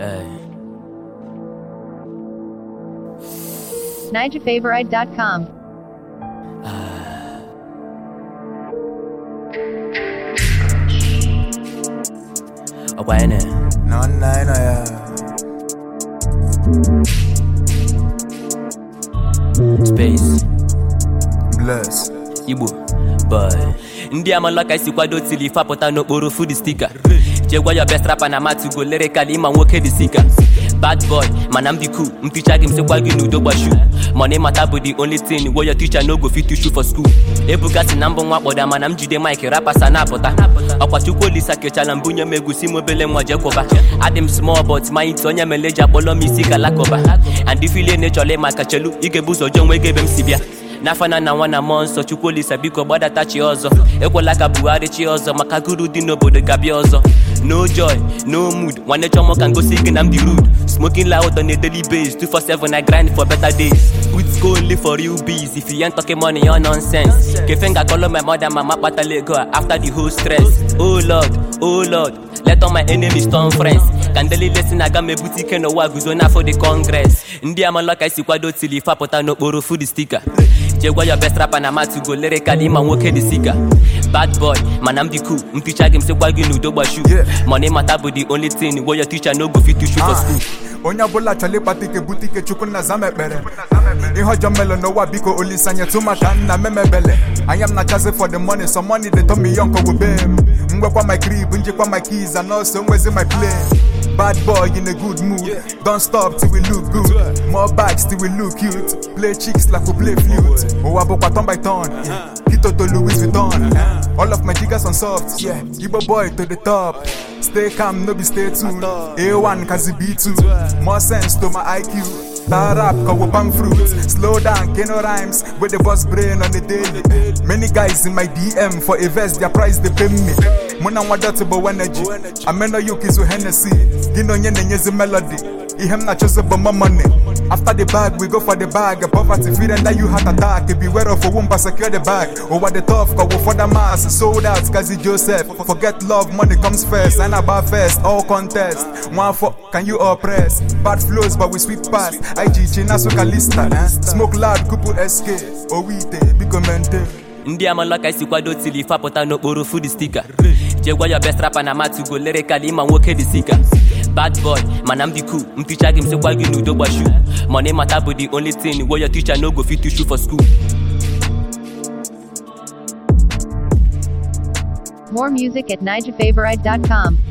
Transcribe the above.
Hey. NigelFavorite.com. Uh. Ah. Oh, wait a minute. No, no, no, Space. Bless. Igbo. Boy. Ndị amala ka esi kwado tili fapụta n'okporo food sticker. jee gwa ya best rapper na matu go lyrically ma nwoke dị sika bad boy mana m dị cool m ticha m sịkwa gị n'udo gbashu money mata bụ the only thing wey your teacher no go fit teach you for school na mbụ nwa kpọda mana m jide mike sa na-apụta ọkwa chukwu olisa kechala mbụ nye m egusi m obele nwa jekwụba adị m small but my ntị onye meleji akpọlọ m isi galakụba and ifile na-echọla ịma ka chelu ị ga-ebu ụzọ jọọ ebe m si bịa n'afana na nwa na mmụọ nsọ chukwuolisa biko gbadata chi ọzọ ekwela ka buhari chi ọzọ maka guru dị n'obodo gabi ọzọ no joy no mood nwanne chọmọ ka ngosi gị na m dị rude smoking loud on a daily base 247 i grind for better days put go only for real bees if you ain't talking money or nonsense kefe nga my mother mama kpatala ego a after the whole stress oh lord oh lord Let all my enemies turn friends Kandeli lesin aga mebuti ike n'ụwa guzo n'afọ dị kọngres ndị amala ka esi kwado tili ife apụta n'okporo food stika jegwa yo best rapper na matugo lirikali ma nwoke dị sika bad boy mana m dị cool m ticha gị m sikwa gị n'udo gbashu money mata bụ the only thing wey your teacher no go fit to shoot for ah. school onye ọbụla chọrọ ịkpata ike bute ike chukwu nna zama ekpere ihe ọjọọ melo n'ụwa biko tu maka nna memebele anya m na-achazi for the money some money dey tommy yo nkogo be m mgbekwa my crib njikwa my keys and also nwezi my plane bad boy in a good mood don't stop till we look good more bags till we look cute play chicks like we play flute ụwa bụkwa turn by turn kitoto louis vuitton all of my jiggers on soft yeah. igbo boy to the top stay calm, no be stay tuned. A1 cause B2. More sense to my IQ. Tar up, we bang fruit. Slow down, get no rhymes. With the boss brain on the daily. Many guys in my DM for a verse their price they pay me. Muna wadatable energy. Amena yuki zu Hennessy. onye na nyezi melody. m na chose but my money. After the bag, we go for the bag. Poverty fear and that you heart attack. Beware of a womb, secure the bag. Over the top, go for the mass. Sold out, Kazi Joseph. Forget love, money comes first. And about first, all contest. One for can you oppress? Bad flows, but we sweep past. IG China so Kalista. Eh? Smoke loud, kupu SK. Owite, oh, big commenter. ndị amala ka isi kwado tili fapụta n'okporo fud stika jegwa ya best rapper na matugo lere kala ịma nwoke dị sika bad boy mana m dị cool m ticha gị m sịkwa gị n'udo gbashu money matter bụ the only thing wey your teacher no go fit teach you for school More music at nigefavourite.com.